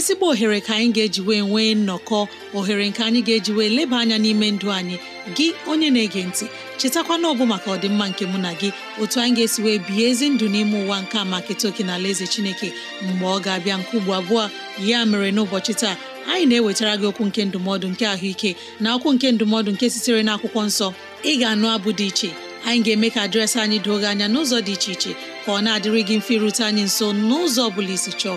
ezigbo ohere ka anyị ga-eji wee nwee nnọkọ ohere nke anyị ga-eji wee leba anya n'ime ndụ anyị gị onye na-ege ntị chetakwana ọbụ maka ọdịmma nke mụ na gị otu anyị ga-esi wee bihe ezi ndụ n'ime ụwa nke a maka etoke na ala eze chineke mgbe ọ ga-abịa nke ugbo abụọ ya mere n'ụbọchị taa anyị na-ewetara gị okwu nke ndụmọdụ nke ahụike na okwu nke ndụmọdụ nke sitere n'akwụkwọ nsọ ị ga-anụ abụ dị iche anyị ga-eme ka dịrasị anyị doo gị anya n'ụzọ dị iche iche ka ọ na-adịrị gị mfe irute anyị nso n'ụzọ ọ bụla isi chọọ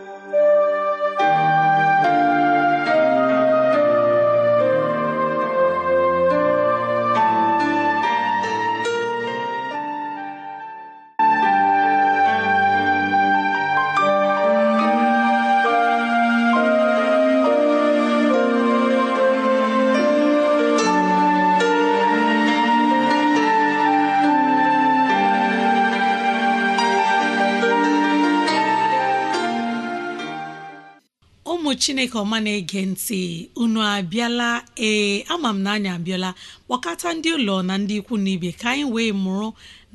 chineke ọma na-ege ntị unu abịala ee ama m na anyị abịala kpọkọta ndị ụlọ na ndị ikwu na ibe ka anyị wee mụrụ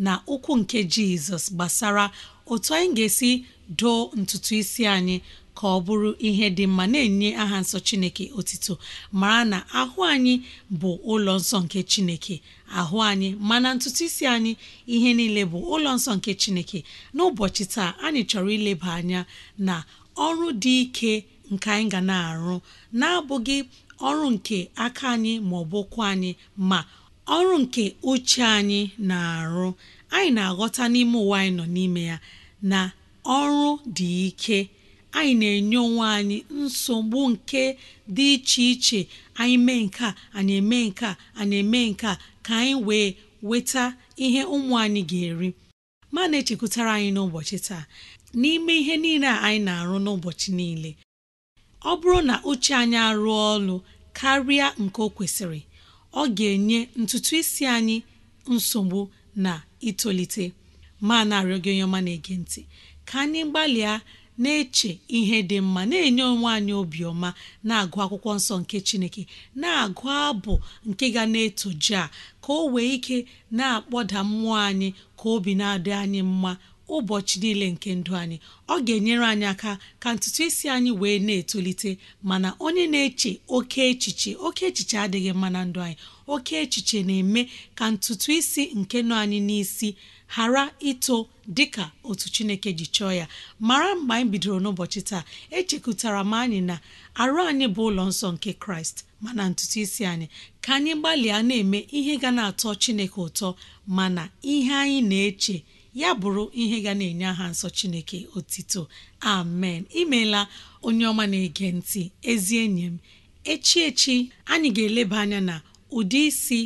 na ụkwụ nke jizọs gbasara otu anyị ga-esi doo ntutu isi anyị ka ọ bụrụ ihe dị mma na-enye aha nsọ chineke otito mara na ahụ anyị bụ ụlọ nsọ nke chineke ahụ anyị mana ntutu isi anyị ihe niile bụ ụlọ nsọ nke chineke n'ụbọchị taa anyị chọrọ ileba anya na ọrụ dị ike nke anyị ga na-arụ na-abụghị ọrụ nke aka anyị ma ọ bụ anyị ma ọrụ nke uche anyị na-arụ anyị na-aghọta n'ime ụwa anyị nọ n'ime ya na ọrụ dị ike anyị na-enye onwe anyị nsogbu nke dị iche iche anyị mee nke a anyị eme nke a anyị eme nke a ka anyị wee weta ihe ụmụ anyị ga-eri ma na-echekwutara anyị n'ụbọchị taa n'ime ihe niile a anyị na-arụ n'ụbọchị niile ọ bụrụ na uche anyị arụọ ọrụ karịa nke o kwesịrị ọ ga-enye ntutu isi anyị nsogbu na itolite ma na-arịọ gị onye ọma na-ege ntị ka anyị gbalịa na-eche ihe dị mma na-enye onwe anyị obiọma na-agụ akwụkwọ nsọ nke Chineke na-agụ abụ nke ga na-etoji a ka o wee ike na-akpọda mmụọ anyị ka obi na-adị anyị mma ụbọchị niile nke ndụ anyị ọ ga-enyere anyị aka ka ntutu isi anyị wee na-etolite mana onye na-eche oke echiche oke echiche adịghị mma na ndụ anyị oke echiche na-eme ka ntutu isi nke nọ anyị n'isi ghara ito dịka otu Chineke ji chọọ ya mara mgbe anyị bidoro n'ụbọchị taa echekụtara m anyị na arụ anyị bụ ụlọ nsọ nke Kraịst mana ntutu isi anyị ka anyị gbalịa na-eme ihe ga na-atọ Chineke ụtọ mana ihe anyị na-eche ya bụrụ ihe ga na-enye aha nsọ Chineke otito amen imeela onye ọma na-ege ntị ezi enyi m echi echi anyị ga-eleba anya na ụdị isi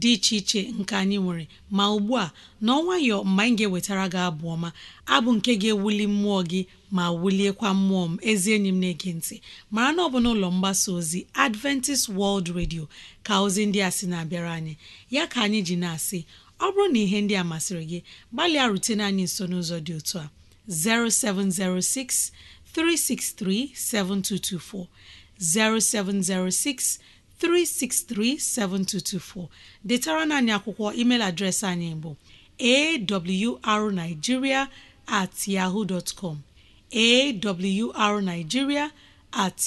dị iche iche nke anyị nwere ma ugbu a n'ọnwayọ mgbe anyị ga-ewetara gị abụ ọma abụ nke ga-ewuli mmụọ gị ma wuliekwa mmụọ m ezi enyi m na-ege ntị mara na ọ bụ n'ụlọ mgbasa ozi Adventist World Radio ka ozi ndị a sị na-abịara anyị ya ka anyị ji na-asị ọ bụrụ na ihe ndị a masịrị gị gbalịa rutene anyị nso n'ụzọ dị otu a 0706 363 7224 0706 363 7224 detara na anyị akwụkwọ email adreesị anyị bụ awrnigeria at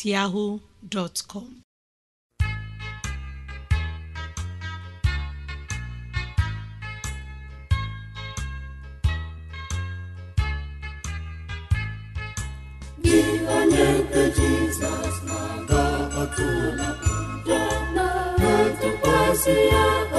siapa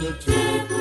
the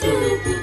Thank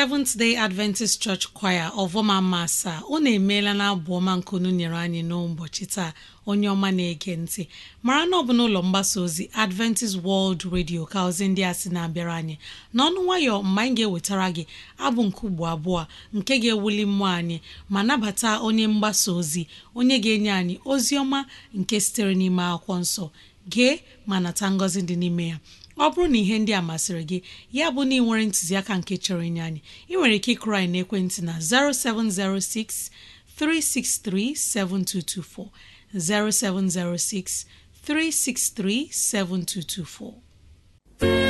Seventh Day Adventist Church Choir ọvọma masa unu emeela na abụ ọma unu nyere anyị n'ụbọchị taa onye ọma na-ege ntị mara na ọ bụ n'ụlọ mgbasa ozi Adventist World Radio ka ozi ndị a sị na-abịara anyị n'ọnụ nwayọ mgbe anyị ga-ewetara gị abụ nke ugbo abụọ nke ga-ewuli mmụọ anyị ma nabata onye mgbasa ozi onye ga-enye anyị ozi ọma nke sitere n'ime akwụkwọ nsọ gee ma nata ngọzi dị n'ime ya ọ bụrụ na ihe ndị a masịrị gị ya bụ na ị nwere ntụziaka nke chọrọ inye anyị ị nwere ike ịkụrụ anyị ekwentị na 0706 363 7224 0706 363 7224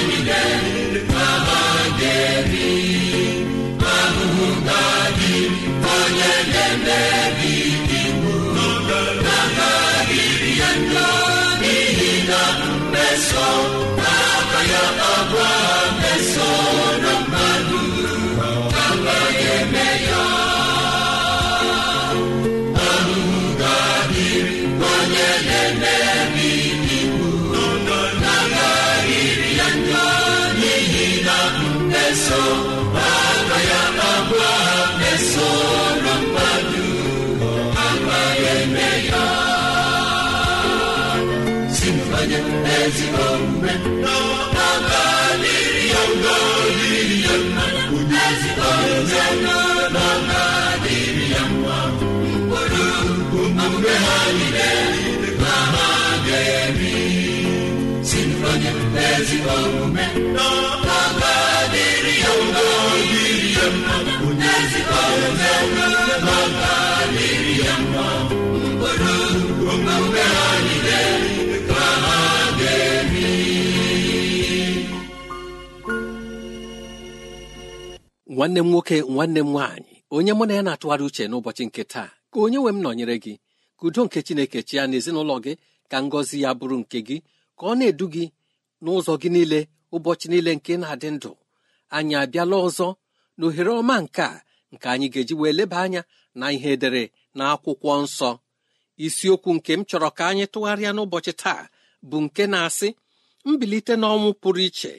na ya ya nwanne m nwoke nwanne m nwaanyị onye mụ na ya na-atụgharị uche n'ụbọchị nke taa ka onye nwe m nọnyere gị ka udo nke chineke chi ya n'ezinụlọ gị ka ngọzi ya bụrụ nke gị ka ọ na-edu gị n'ụzọ gị niile ụbọchị niile nke na-adị ndụ anyị abịala ọzọ na ohere ọma nke a nke anyị ga-eji wee leba anya na ihe edere na akwụkwọ nsọ isiokwu nke m chọrọ ka anyị tụgharịa n'ụbọchị taa bụ nke na-asị mbilite n'ọnwụ pụrụ iche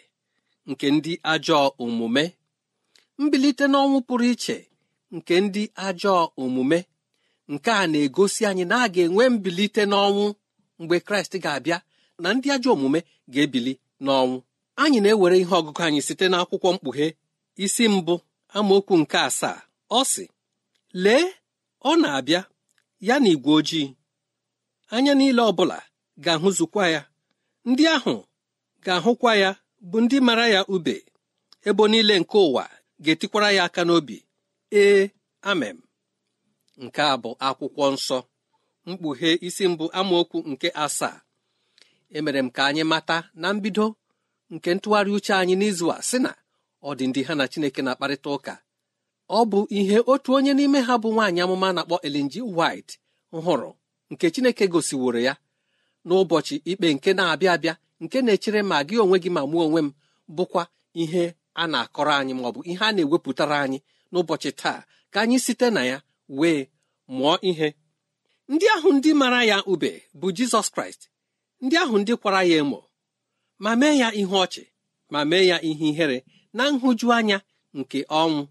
nke ndị ajọọ omume mbilite n'ọnwụ pụrụ iche nke ndị ajọọ omume nke a na-egosi anyị na a ga-enwe mbilite n'ọnwụ mgbe kraịst ga-abịa na ndị ajọ omume ga-ebili n'ọnwụ anyị na-ewere ihe ọgụgụ anyị site n'akwụkwọ mkpughe isi mbụ amaokwu nke asaa ọ sị lee ọ na-abịa ya na igwe ojii anya niile ọbụla ga-ahụzukwa ya ndị ahụ ga-ahụkwa ya bụ ndị mara ya ube ebo niile nke ụwa ga-etikwara ya aka n'obi ee amem nke a bụ akwụkwọ nsọ mkpughe isi mbụ amaokwu nke asaa emere m ka anyị mata na mbido nke ntụgharị uche anyị n'izu a sị na ọ dị ndị ha na Chineke na-akparịta ụka ọ bụ ihe otu onye n'ime ha bụ nwaanyị amụma na-akpọ elinji White hụrụ nke Chineke gosiworo ya n'ụbọchị ikpe nke na-abịa abịa nke na-echere ma gị onwe gị ma mụọ onwe m bụkwa ihe a na-akọrọ anyị maọ bụ ihe a na-ewepụtara anyị n'ụbọchị taa ka anyị site na ya wee mụọ ihe ndị ahụ ndị mara ya ube bụ Jizọs Kraịst ndị ahụ ndị kwara ya emo ma mee ya ihe ọchị ma mee ya ihe ihere na nhụjuanya nke ọnwụ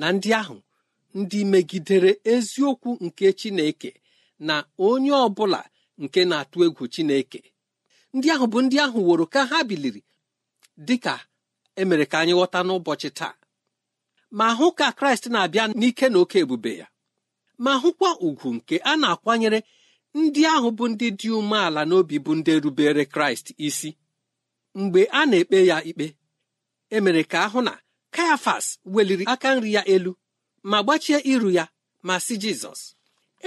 na ndị ahụ ndị megidere eziokwu nke Chineke na onye ọ bụla nke na-atụ egwu Chineke ndị ahụ bụ ndị ahụ woro ka ha biliri dị ka emere ka anyị ghọta n'ụbọchị taa ma hụ ka Kraịst na-abịa n'ike na oke ebube ya ma hụkwa ugwu nke a na-akwanyere ndị ahụ bụ ndị dị umeala n'obi bụ ndị rubere kraịst isi mgbe a na-ekpe ya ikpe emere ka ahụ na kayafas weliri aka nri ya elu ma gbachie iru ya ma si jizọs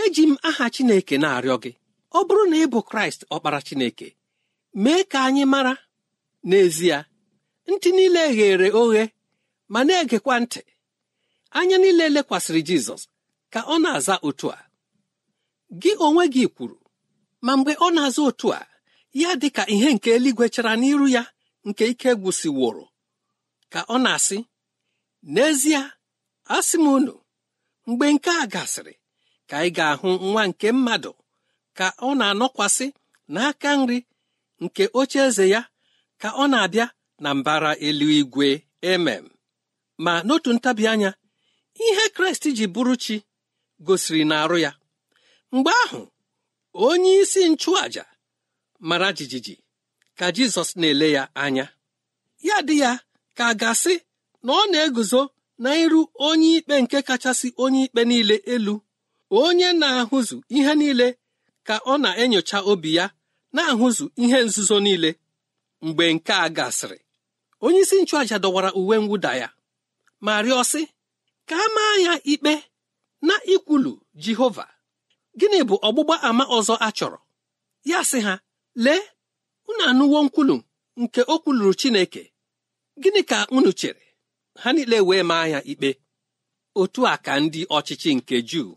eji m aha chineke na-arịọ gị ọ bụrụ na ị bụ kraịst ọkpara chineke mee ka anyị mara n'ezie ntị niile ghere oghe ma na-egekwa ntị anya niile lekwasịrị jizọs ka ọ na-aza otu a gị onwe gị kwuru ma mgbe ọ na-azụ otu a ya dị ka ihe nke eluigwe chara n'iru ya nke ike gwụsịworo ka ọ na-asị n'ezie asị m unu mgbe nke a gasịrị ka ị ga-ahụ nwa nke mmadụ ka ọ na-anọkwasị n'aka nri nke oche eze ya ka ọ na-abịa na mbara eluigwe emem ma n'otu ntabi anya ihe kraịst ji bụrụ chi gosiri na arụ ya mgbe ahụ onye isi nchụàja mara jijiji ka jizọs na-ele ya anya ya dị ya ka a na ọ na-eguzo na iru onye ikpe nke kachasị onye ikpe niile elu onye na-ahụzu ihe niile ka ọ na-enyocha obi ya na-ahụzu ihe nzuzo niile mgbe nke a gasịrị onye isi nchụàja dọwara uwe mwụda ya ma rịọ ka a maa ya ikpe na ikwulu jehova gịnị bụ ọgbụgba ama ọzọ a chọrọ ya sị ha lee unu anụwo nkwulu nke o kwuluru Chineke gịnị ka unu chere ha niile wee maa ya ikpe otu a ka ndị ọchịchị nke Juu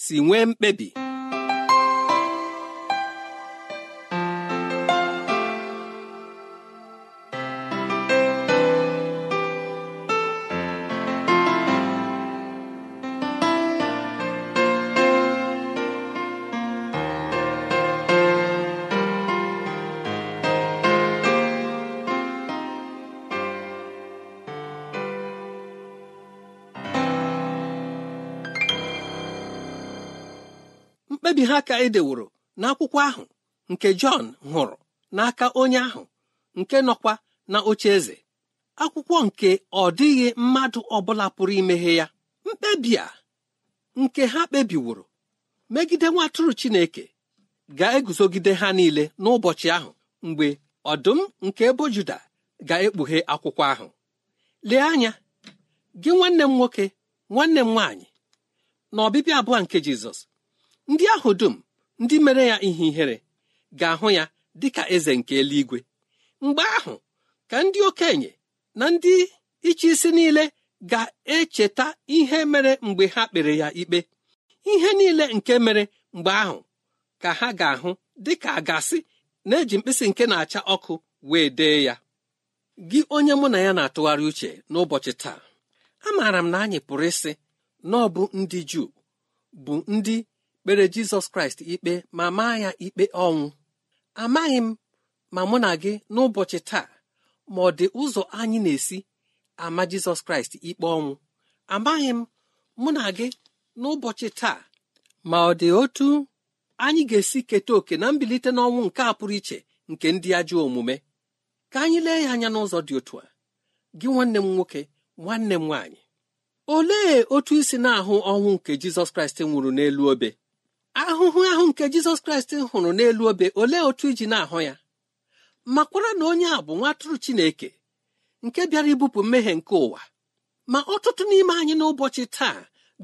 si nwee mkpebi mkpebi ha ka edeworo n'akwụkwọ ahụ nke Jọn hụrụ n'aka onye ahụ nke nọkwa na oche eze akwụkwọ nke ọdịghị mmadụ ọbụla pụrụ imeghe ya mkpebi a nke ha kpebiworo megide nwa Chineke ga-eguzogide ha niile n'ụbọchị ahụ mgbe ọdụm nke ebo Juda ga-ekpughe akwụkwọ ahụ lee anya gị nwanne m nwoke nwanne m nwaanyị na ọbịbịa abụọ nke Jizọs ndị ahụ dum ndị mere ya ihe ihere ga-ahụ ya dịka eze nke eluigwe mgbe ahụ ka ndị okenye na ndị ịchị isi niile ga-echeta ihe mere mgbe ha kpere ya ikpe ihe niile nke mere mgbe ahụ ka ha ga-ahụ dịka a na-eji mkpịsị nke na-acha ọkụ wee dee ya gị onye mụ na ya na-atụgharị uche n'ụbọchị taa amaara m na anyị pụrụ ịsị na ọ bụ ndị Juu bụ ndị kpere jizọs kraịst ikpe ma maa ya ikpe ọnwụ amaghị m ma mụ na gị n'ụbọchị taa ma ọ dị ụzọ anyị na-esi ama jizọs kraịst ikpe ọnwụ amaghị m mụ na gị n'ụbọchị taa ma ọ dị otu anyị ga-esi keta oke na mbilite n'ọnwụ nke a pụrụ iche nke ndị ajọ omume ka anyị lee ya anya n'ụzọ dị otu a gị nwanne m nwoke nwanne m nwaanyị olee otu isi na-ahụ ọnwụ nke jizọs kraịst nwụrụ n'elu obe ahụhụ ahụ nke jizọs kraịst hụrụ n'elu obe olee otu iji na-ahụ ya makwara na onye a bụ nwatụrụ chineke nke bịara ibupụ mmehie nke ụwa ma ọtụtụ n'ime anyị n'ụbọchị taa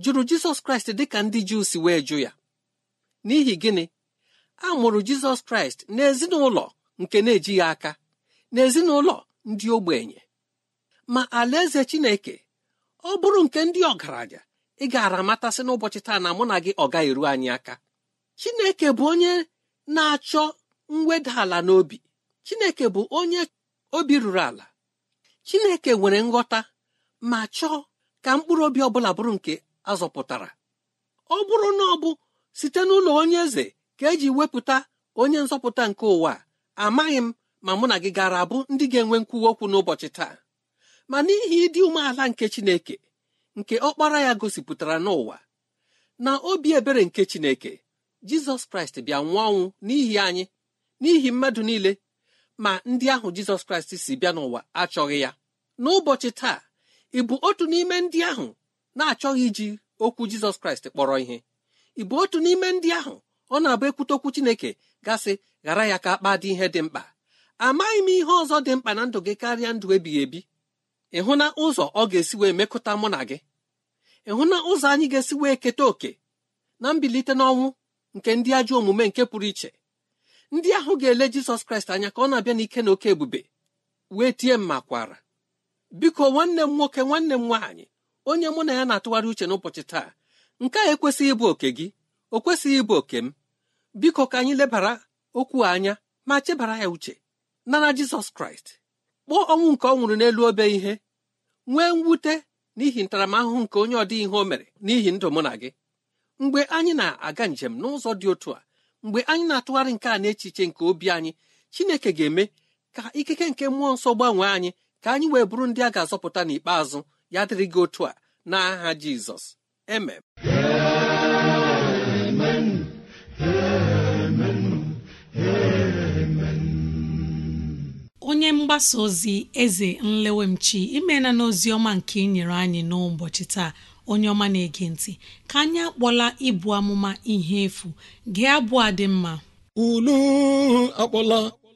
jụrụ jizọs kraịst dị ka ndị juu si wee jụ ya n'ihi gịnị a mụrụ jizọs kraịst n'ezinụlọ nke na-ejighị aka n'ezinụlọ ndị ogbenye ma alaeze chineke ọ bụrụ nke ndị ọgaranya ị gaara amatasị n'ụbọchị taa na mụ na gị ọ gaghị eru anyị aka chineke bụ onye na-achọ mweda ala n'obi chineke bụ onye obi ruru ala chineke nwere nghọta ma chọọ ka mkpụrụ obi ọbụla bụrụ nke azọpụtara ọ bụrụ na ọ bụ site n'ụlọ onye eze ka eji wepụta onye nzọpụta nke ụwa amaghị m ma mụ na gị gara abụ ndị ga-enwe nkwuwa okwu n'ụbọchị taa ma n'ihi ịdị umeala nke chineke nke ọkpara ya gosipụtara n'ụwa na obi ebere nke Chineke Jizọs Kraịst bịa nwụọ ọnwụ n'ihi anyị n'ihi mmadụ niile ma ndị ahụ Jizọs Kraịst si bịa n'ụwa achọghị ya n'ụbọchị taa ị bụ otu n'ime ndị ahụ na-achọghị iji okwu Jizọs Kraịst kpọrọ ihe ị bụ otu n'ime ndị ahụ ọ na-abụ ekwute okwu Chineke gasị ghara ya ka akpa dị ihe dị mkpa amaghị m ihe ọzọ dị mkpa na ndụ gị karịa ndụ ebighị ebi ịhụ na ụzọ ọ ga-esi wee mekọta mụ na gị ịhụ na ụzọ anyị ga-esi wee keta oke na mbilite n'ọnwụ nke ndị ajọ omume nke pụrụ iche ndị ahụ ga-ele jizọs kraịst anya ka ọ na-abịa n'ike na oke ebube wee tie mma kwara biko nwanne m nwoke nwanne m nwaanyị onye mụ na ya na-atụgharị uche n'ụbọchị taa nke a ekwesịghị ịbụ oke gị o kwesịghị ịbụ oke m biko ka anyị lebara okwu anya ma chebara ya uche nara jizọs kraịst kpọọ ọnwụ nke ọ nwụrụ n'elu obe ihe nwee mwute n'ihi ntaramahụhụ nke onye ọdị ihe o mere n'ihi ndụ mụ na gị mgbe anyị na-aga njem n'ụzọ dị otu a mgbe anyị na-atụgharị nke a n'echiche nke obi anyị chineke ga-eme ka ikike nke mmụọ nsọ gbanwee anyị ka anyị wee bụrụ ndị a ga-azọpụta n'ikpeazụ ya dịrị gị otu a n'aha Jizọs emem mgbasa ozi eze nlewemchi imena n'ozi ọma nke ị anyị n'ụbọchị taa onye ọma na-ege ntị ka anyị akpọla ịbụ amụma ihe efu gee abụọ dị mma unu akpọla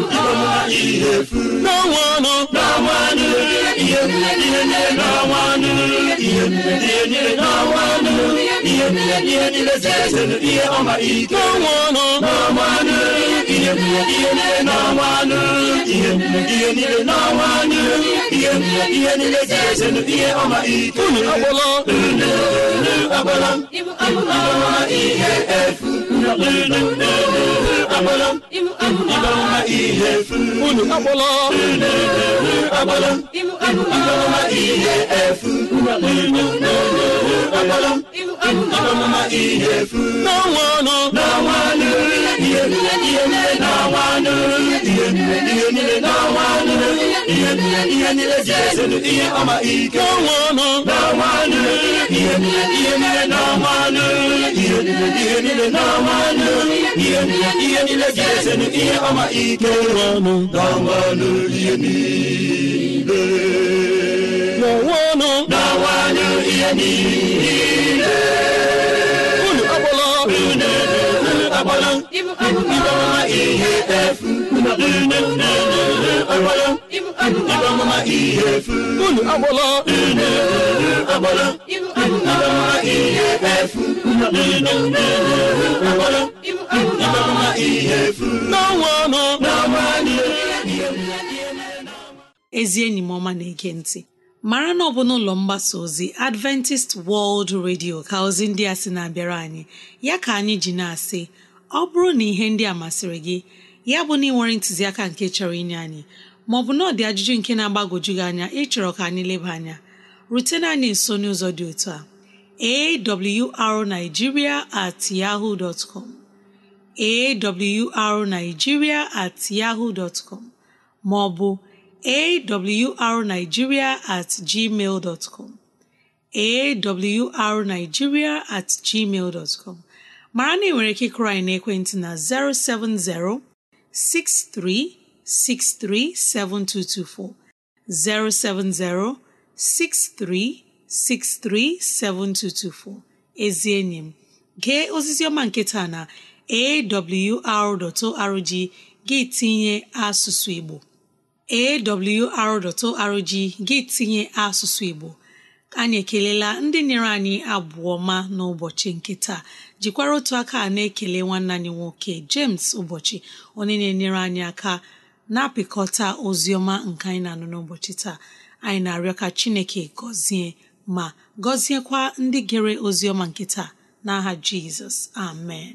n'ọnwanụ n'ọnwanụ ihe niile n'ọnwanụ ihe niile n'ọnwanụ ihe niile niile sesere ihe ọma ike n'ọnwanụ n'ọnwanụ ihe niile n'ọnwanụ ihe niile n'ọnwanụ ihe niile sesere ihe ọma ike unu agbọla unu agbọla ịbụ ihe efu unu unu unu ịgbarama ihe unu agbala ihe efu ndọrọmma ihe efu n'anwanụ n'anwanụ ihe niile ihe niile n'anwanụ ihe niile ihe ihe ihe ihe ọma ike n'anwanụ n'anwanụ ihe ihe ihe ihe ihe ihe ihe ihe niile n'onwe ọnụ unu agbala unu agbala ịbamama ihe ihe ihe ihe ọnụ ọnụ ezi enyi m ọma na-ege ntị mara na ọ bụ n'ụlọ mgbasa ozi adventist world radio ka ozi ndị a sị na-abịara anyị ya ka anyị ji na-asị ọ bụrụ na ihe ndị a masịrị gị ya bụ na ị nwere ntụziaka nke chọrọ inye anyị maọbụ na ọ dị ajụjụ nke na-agbagwoju gị anya ịchọrọ ka anyị leba anya rutena anyị nso n'ụzọ dị otu a arigiria at yahoo com at maọbụ awrnigeria at gmail dot com awrnigeria at gmail dot com mara na ị nwere ike ịkụrụ anyị n'ekwentị na 070 6363 7224 070 6363 7224 ezi enyi m nke ozizi ọma na AWR na awr.org gị tinye asụsụ Igbo awr.org gị tinye asụsụ Igbo anyị ekelela ndị nyere anyị abụọ ma n'ụbọchị nke taa jikwara otu aka na-ekele nwanne anyị nwoke James ụbọchị onye na-enyere anyị aka na-apịkọta ozi ọma nke anyị na-anụ n'ụbọchị taa anyị na-arịọ ka Chineke gọzie ma gọziekwa ndị gere ozi ọma nke taa n'aha Jizọs amen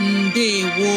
ndewo